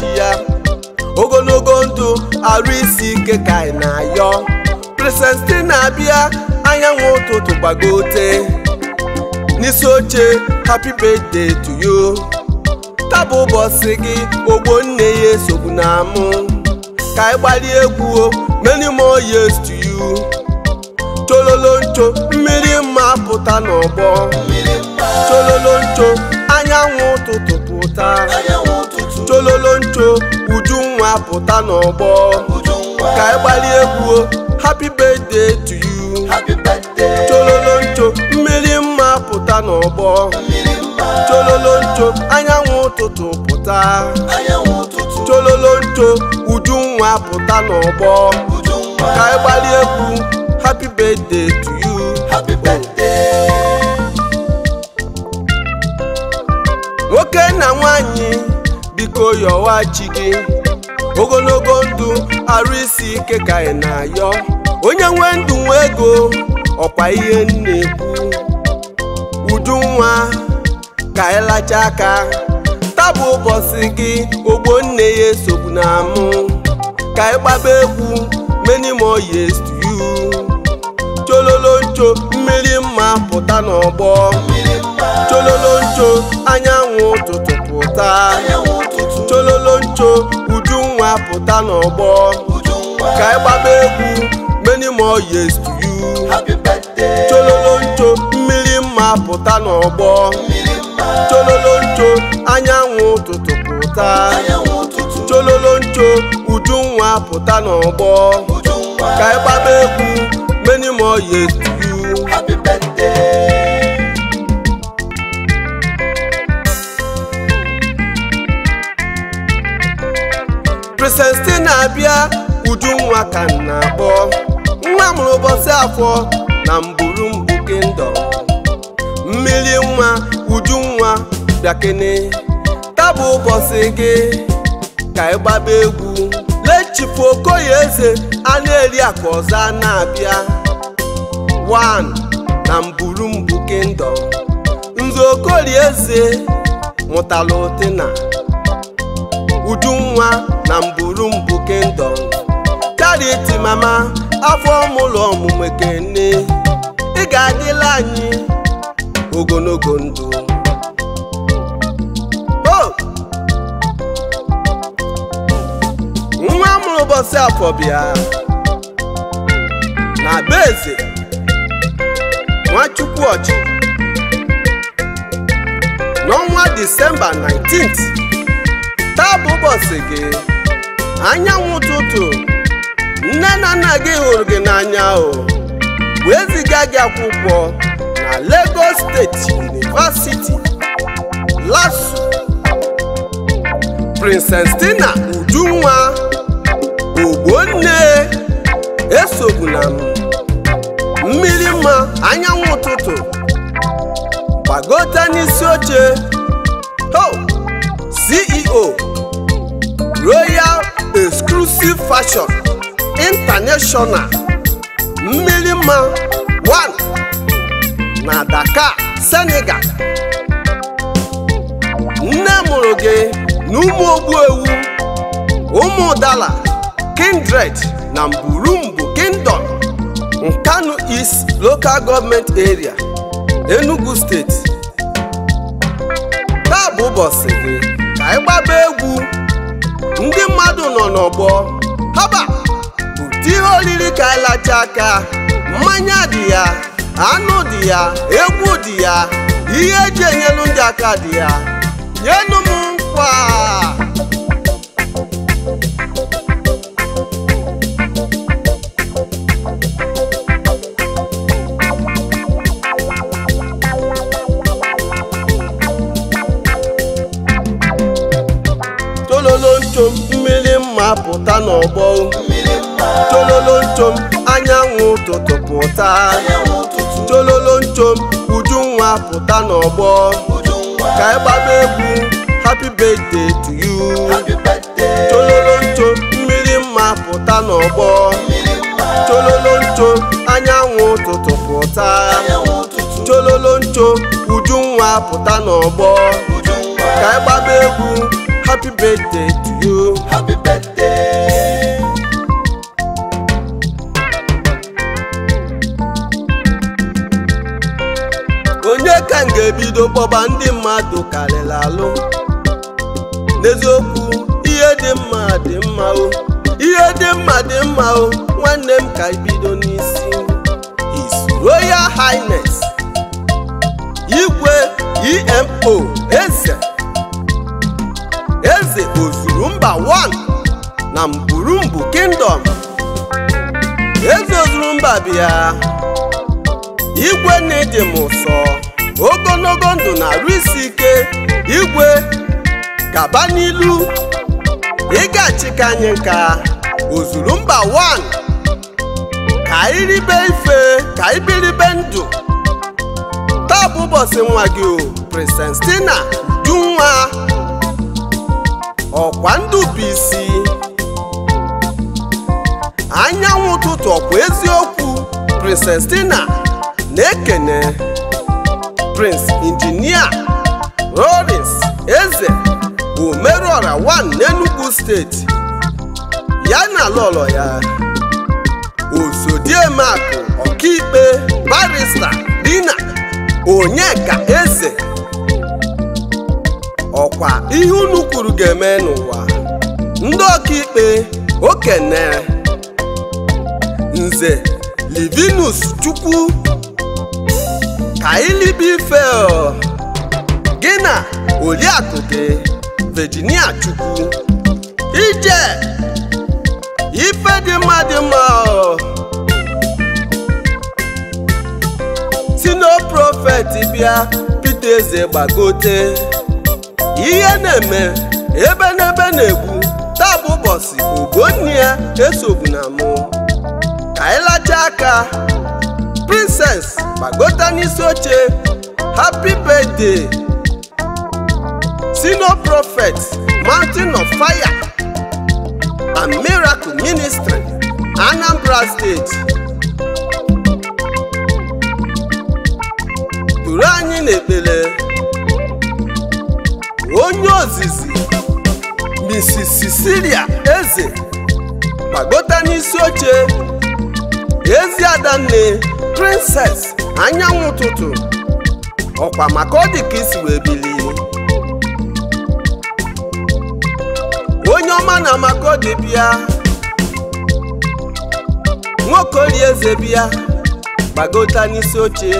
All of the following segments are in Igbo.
chi ya ogologo ndụ arụ isi ike ka anyị na-ayọ na-abịa anyanwụ ụtụtụ gbagote n'isi oche happy birthday to you tabụ ụbọchị gị ogbo nne ya esogbu na amụ ka anyị gbalie egwu many more years to you chololo ncho mmiri mma pụta n'ọgbọ chololo anyanwụ ụtụtụ pụta chololo ncho nwa pụta n'ọgbọ ka ị gbali egwu happy birthday to you chololo ncho mmiri mma pụta n'ọgbọ chololo ncho anyanwụ ụtụtụ pụta chololo ncho nwa pụta n'ọgbọ ka ị gbali egwu happy birthday to you nwoke na nwanyị biko yọwa chi gị ogologo ndụ arụ isi ike ka ị na-ayọ onye nwe ndụ nwe ego ọkwa ihe na-ekwu udu nwa ka ịlacha aka tabụ ụbọchị gị ogbo nne ya esogbu na amụ ka gbaba egwu many more years to you mmiri mma pụta n'ọgbọ ncho anyanwụ ụtụtụ pụta chololoncho nwa pụta n'ọgbọ ka ị gbaba egwu many more years to you chololoncho mmiri mma pụta n'ọgbọ chololoncho anyanwụ ụtụtụ pụta chololoncho nwa pụta n'ọgbọ ka ị gbaba egwu many more years to you na-abịa abia nwa ka na-akpọ nwa mụrụ ụbọchị afọ na mburu mbụ Kingdom mmiri nwa nwa bịakene tabụ ụbọchị gị ka ịgbaba egwu lechipu Okoye Eze a na-eri akụ ọzọ na-abịa 1 na mburu mbụ Kingdom Nze Okorie Eze mụtala nwa na mbụ Kingdom karịa mama afọ mụlụ ọmụmụ kene ị ga-adịla anyị ogologo ndụ nwa mụrụ ụbọchị afọ bịa na be eze Nwachukwu Ọchị n'ọnwa Disemba 19 taa bụ ụbọchị gị anyanwụ ụtụtụ nne na nna gị hụrụ gị n'anya o wee ziga gị akwụkwọ na Lagos steeti University LASU Princess Tina Udunwa Ogbonne esogbuna na mmiri mma anyanwụ ụtụtụ gbagota n'isi oche ho CEO Royal Exclusive Fashion International Mmilima One na Dakar, Senegal nne mụrụ gị na ụmụ ogbuewu ụmụ dala kindred na mburumbu kingdom nkanu east local government area enugu State taa bụ ụbọchị gị anyị gbaba egwu ndị mmadụ nọ n'ọgbọ haba ụdị ihe oriri ka anyị aka mmanya dị ya anụ dị ya egwu dị ya ihe eji enyelu ndị aka dị ya nyenu m nkwa pụta n'ọgbọ tololo nchom anyanwụ ụtụtụ pụta tololo nchom ujunwa pụta n'ọgbọ ka ị gbaba egwu happy birthday to you tololo nchom mmiri mma pụta n'ọgbọ tololo nchom anyanwụ ụtụtụ pụta tololo nchom ujunwa pụta n'ọgbọ ka ị gbaba egwu happy birthday to you happy birthday bido ebido ndị mmadụ karịrị alụ n'eziokwu ihe dị mma dị mma o ihe dị mma dị mma o nwanne m ka ibido n'isi is Royal Highness igwe EMO eze eze ozuru mba 1 na mburumbu kingdom eze ozuru mba bịa igwe na ịdị m ụsọ ogologo ndụ na-arụ isi ike igwe gaba n'ilu ịgachika anyị nka ozuru mba 1 ka ribe ife ka ndụ taa bụ ụbọchị nwa gị o Princess ọkwa ndụ bụ anyanwụ ụtụtụ ọkwa eziokwu Princess na-ekene Prince Injinia Lawrence Eze bụ Merụọra wan n'Enugu steeti ya na lọlọ ya Ozodiemeakụ Ọkaikpe Barista Dina Onyeka Eze ọkwa ihe unu kwuru ga-eme n'ụwa ndị ọkaikpe okene nze Livinus Chukwu ọ! gị na Oriakụ vejinia Chukwu ije ife dị mma dị mma sino prọfet bịa Pita eze gbagote ihe na-eme ebe n'ebe na-egbu taa bụ ụbọchị ogonni ya na m ka anyị aka princess gbagota n'isi oche happy birthday senior prophet mountain of fire and miracle ministry anambra state. duru anyị n'ekpele onye ozizi mrs sicilia eze gbagota n'isi oche ezi adanne princess anyanwụ ụtụtụ ọkwa maka ọ dị ka onye ọma na maka bịa nwoke ori eze bịa gbagota n'isi oche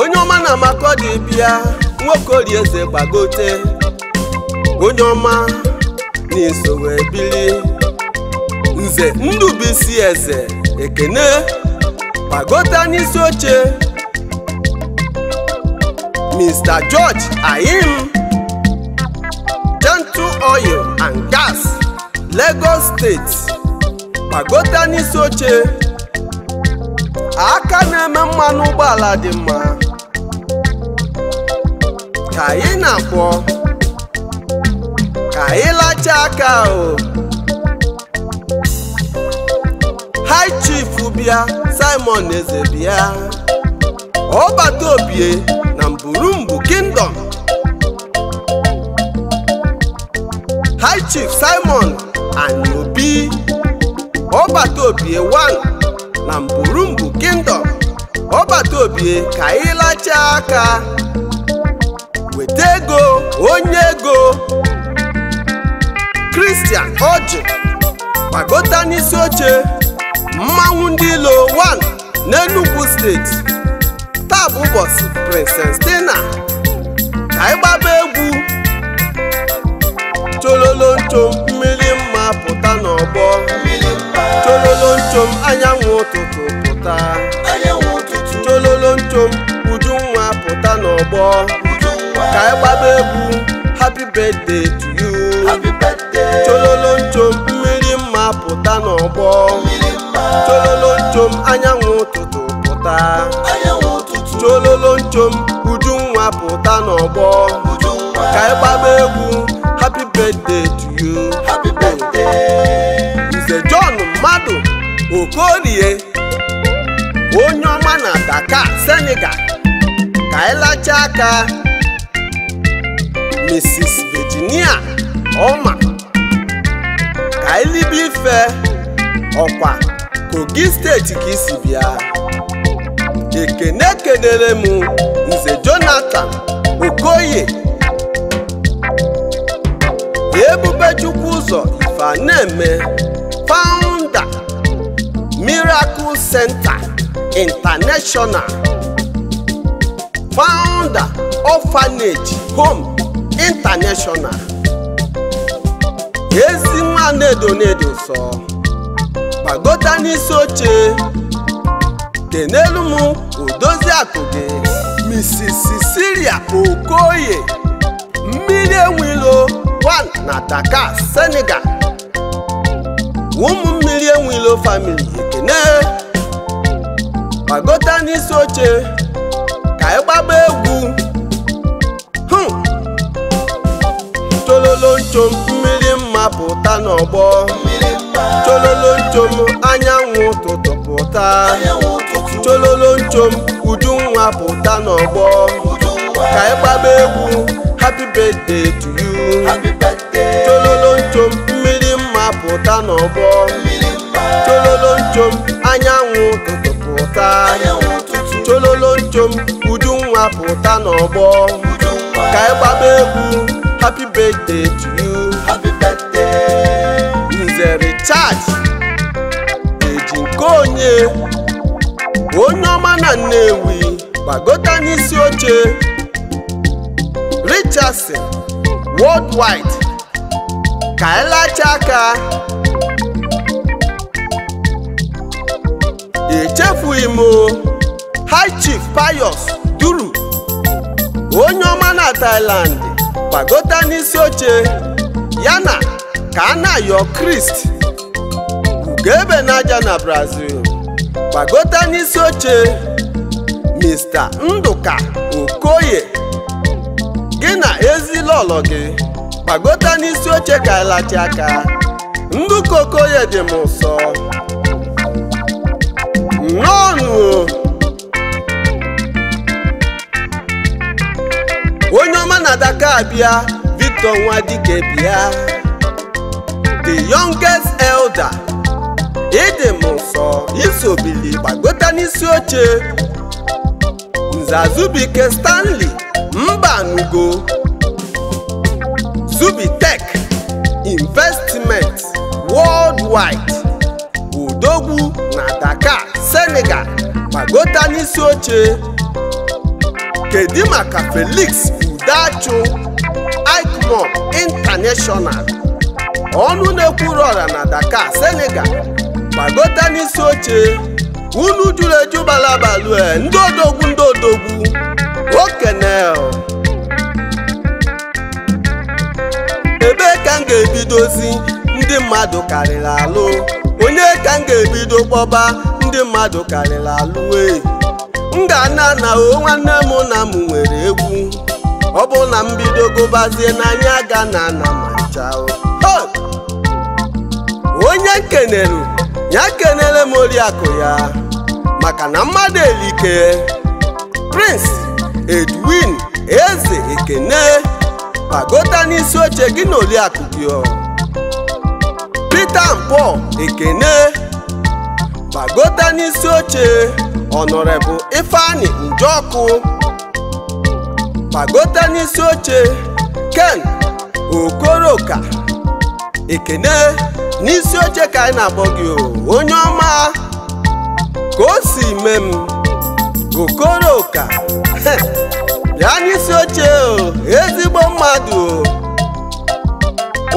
onye ọma na maka bịa nwoke ori eze gbagote onye ọma na-eso wee bilie nze eze ekene gbagota n'isi oche Mr. George Ayim Gentle Oil and Gas Lagos steeti gbagote n'isi oche aka na-eme mmanụ ụgbọala dị mma ka anyị na-akwọ ka anyị lachaa aka o bịa Simon eze bịa ọbata obie na Mburumgbu kingdom High Chief Simon Ani Obi ọbata obie 1 na mbụ kingdom ọbata obie ka anyị lachaa aka weta ego onye ego Christian Oji gbagota n'isi oche mmanwụ ndị Ilo 1 n'Enugu steeti taa bụ ụbọchị Princess Tina ka anyị gbaba egwu chololonchom mmiri mma pụta n'ọgbọ chololonchom anyanwụ ụtụtụ pụta chololonchom mma pụta n'ọgbọ ka anyị gbaba egwu happy birthday to you okorie onye ọma na daka Senegal ka ịlacha aka Mrs. Virginia ọma ka ịlibe ife ọkwa Kogi steeti ka isi bịa ekene kedere m nze Jonathan Okoye ebube chukwu ụzọ ife a eme Miracle Center International founder Orphanage Home International ezi nwa na-edo na-edo sọ gbagota n'isi oche dị n'elu m odozi gị Mrs. Cecilia Okoye mmiri enwilo 1 na Dakar Senegal ụmụ mmiri enwilo famili ne gbagota n'isi oche ka ị e gbagba egwu chololo nchom mmiri mma pụta n'ọgbọ chololo nchom anyanwụ ụtụtụ pụta chololo nchom nwa pụta n'ọgbọ ka ị e gbagba egwu happy birthday to you chololo nchom mmiri mma pụta n'ọgbọ chololo anyanwụ ụtụtụ pụta chololo pụta n'ọgbọ ka ị egwu happy birthday to you nze richard onye onye ọma na nnewi gbagota n'isi oche richardson worldwide ka ịlacha aka echefughị m o payos duru onye ọma na Thailand gbagota n'isi oche ya na kanayo krist ugebe n'aja na Brazil gbagota n'isi oche Mr. ndụka Okoye gị na ezilolo gị gbagota n'isi oche ka ịlachi aka Nduka Okoye dị m ụsọ bịa Victor Nwadike bịa the youngest elder ịdị m nsọ isobili gbagota n'isi oche nza Stanley mba nugo Zubitech investment worldwide Odogwu na Dakar Senegal gbagota n'isi oche kedu maka Felix Udachu bụ intanashọnal ọnụ na-ekwuru ọra na Dakar Senegal gbagota n'isi oche unu jụrụ eju balabalue ndị odogwu ndị odogwu okene ebe ka m ga-ebidozi ndị mmadụ karịrị alụ onye ka m ga-ebido kpọba ndị mmadụ karịrị alụ we m ga-ana na o nwanne m na m nwere egwu ọ bụ na mbido gụbazie n'anya ga na na machao onye nkenere ya nkenere m oriakụ ya maka na mmadụ elike Prince Edwin Eze Ekene pagota n'isi oche gị na oriakụ gị Peter Mpo Ekene pagota n'isi oche ọnọrebụ Ifeanyi ọkụ. kpagote n'isi oche ken okoroka ekene n'isi oche ka anyị na-akpọ gị onye ọma ka o si mee m okoroka ya n'isi oche ezigbo mmadụ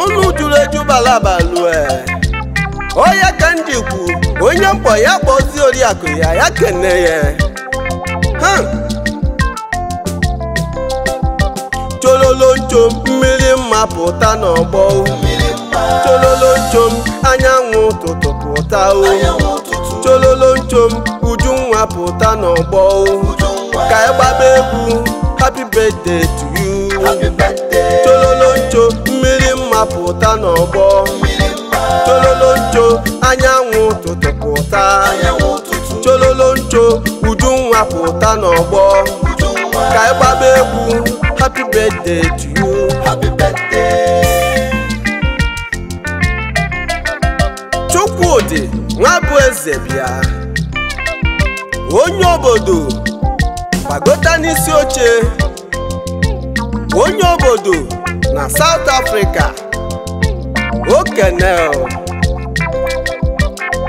ụlọ juru eju balabalue oya ka m onye mkpọ ya kpọzie oriakụ ya ya kene ya tololonchom mmiri mma pụta n'ọgbọ tololonchom anyanwụ ụtụtụ pụta o uju nwa pụta n'ọgbọ ka ị gbaba egwu happy birthday to you tololoncho mmiri mma pụta n'ọgbọ tololoncho anyanwụ ụtụtụ pụta uju nwa pụta n'ọgbọ ka ị gbaba egwu happy birthday to you. Happy birthday. Chukwudi nwa bụ onye obodo gbagota n'isi oche onye obodo na South Africa okenel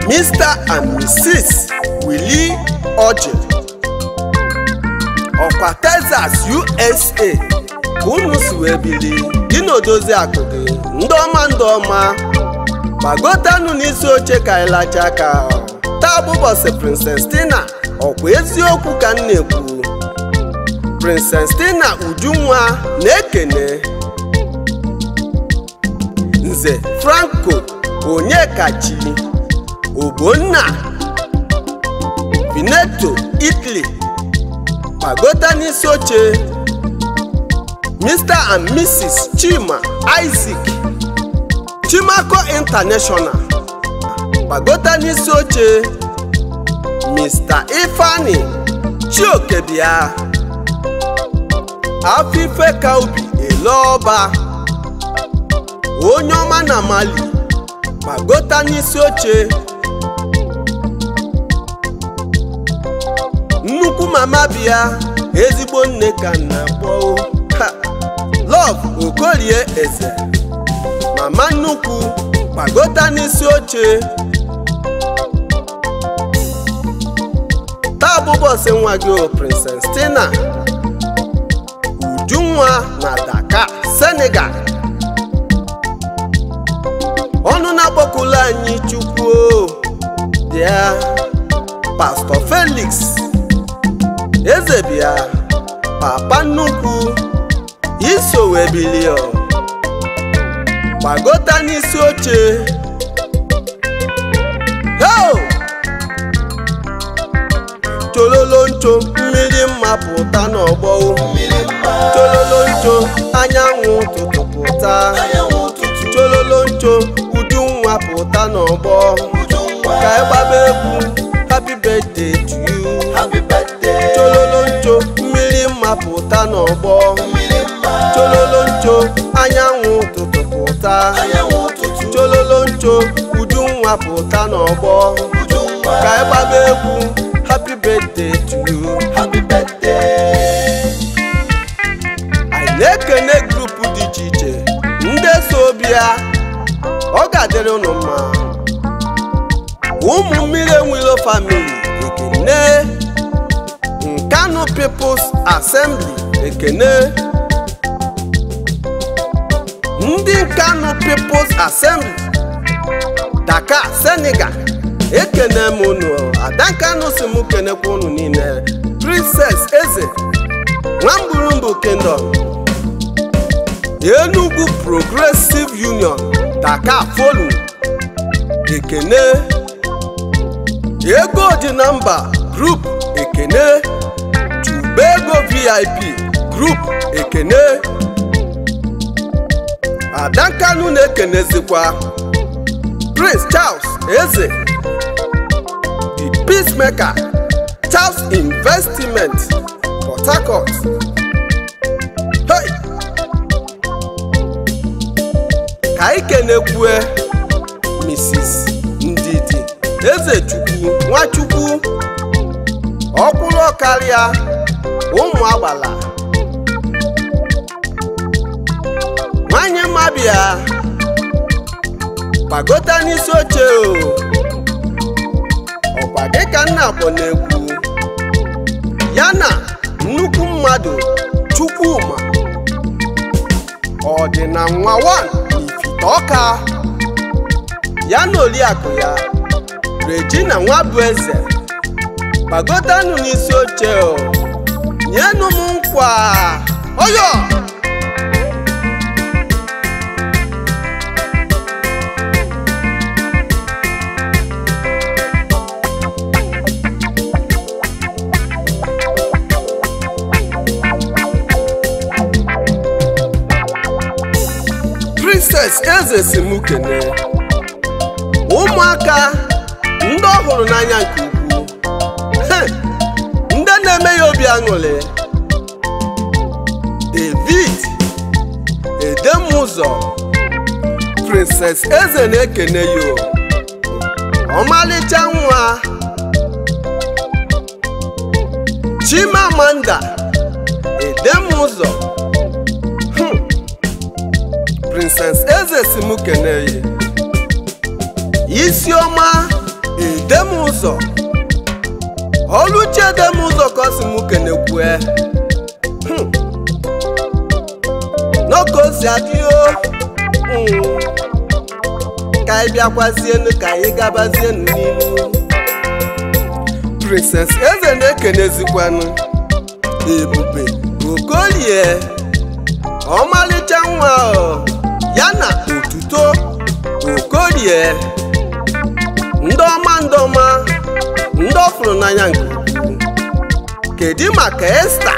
Mr and Mrs. Willie Oji ọkwa Texas USA ka ụmụ si wee dị n'odozi akụ gị ndị ọma ndị ọma n'isi oche ka anyị lachaa taa bụ ụbọchị ọkwa eziokwu ka m na-ekwu Ujunwa na-ekene Nze Franco Onyekachi Ogbonna Veneto Italy pàgọ́tà ní sí mr and mrs chima isaac chimako international pàgọ́tà ní sí mr ifeanyi chiokebia afife kaubi eleọba onye ọma na mali pàgọ́tà ní sí mama bịa ezigbo nne ka nna kpọọ love okorie eze mama nnukwu gbagota n'isi oche taa bụ bọsị nwa gị princess ujunwa na daka Senegal ọnụ na anyị chukwuo bịa pastọ Felix eze bịa papa nnukwu isowe bilio gbagota n'isi oche ho tololo ncho mmiri mma pụta n'ọgbọ tololo ncho anyanwụ ụtụtụ pụta tololo ncho uju nwa pụta n'ọgbọ ka ịgbaba egwu happy birthday to you pụta n'ọgbọ chololo ncho anyanwụ ụtụtụ pụta chololo ncho uju pụta n'ọgbọ ka ịgbaba egwu happy birthday to you happy birthday na-ekene grupu dị iche iche ndị so bịa ọ ga-adịrị ụnụ mma ụmụ mmiri enwilo famili ekene nkanụ peoples Assembly Ekene ndị Kano People's Assembly Daka Senegal ekene m unu Adankano si m kenekwa unu niile Princess Eze Nwamgburumbu Kingdom Enugu Progressive Union daka Folu Ekene Ego dị na mba Group Ekene bego ego vip group ekene adankanu na-ekenezikwa prince charles eze the peacemaker charles investment port harcourt hey! ka ikenekwe mrs ndidi ezechukwu nwachukwu ọkwụrụ karịa ụmụ agbala nwanyị ya gbagota n'isi oche ọkwa dịka nna akpọ na-ekwu ya na nnukwu mmadụ Chukwuma ọ dị na nwa wan n'ifite ọka ya na oriakụ ya Regina nwa bụ eze gbagotanụ n'isi oche nyenụ m nkwa oyo princess eze si m ụmụaka ndị ọhụrụ hụrụ n'anya nke ya ṅụrị David Edemụzọ Princess Eze na-ekene yo ọmalịcha nwa Chimamanda Edemụzọ hmm. Princess Eze si m kene Isioma Edemụzọ oluchiedem ụzọ ka hmm. o si m kenekwu n'okosi adịghị hmm, ka anyị bịakwazienu ka anyị gabazienu n'ihu princess eze na-ekenezikwanụ ebube okolie ọmalịcha nwa ya na otuto okolie ndọma ndọma ndị ọ fụrụ n'anya nke ukwuu kedu maka Esta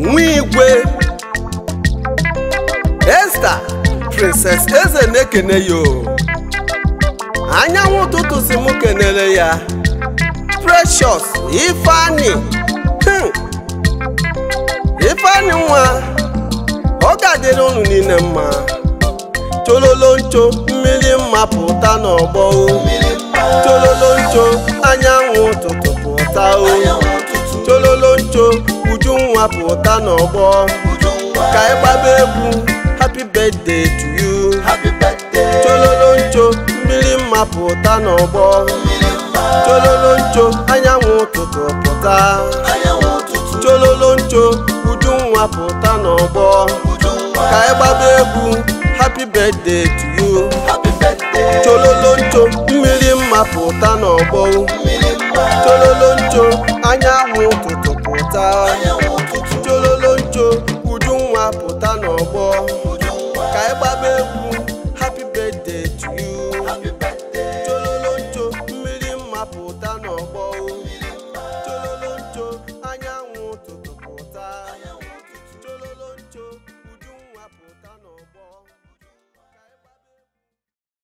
nwa igwe Esta princess eze na-ekene ya o anyanwụ ụtụtụ si m kenere ya Precious Ifeanyi hmm. Ifeanyi nwa ga adịrị unu niile mma chololoncho mmiri mma pụta n'ọgbọ chololoncho anyanwụ ụtụtụ pụta o chololoncho nwa pụta n'ọgbọ ka ị gbaba egwu happy birthday to you chololoncho mmiri mma pụta n'ọgbọ chololoncho anyanwụ ụtụtụ pụta chololoncho uju nwa pụta n'ọgbọ ka ị gbaba egwu happy birthday to you chololoncho mmiri mma pụta n'ọgbọ chololoncho anyanwụ ụtụtụ pụta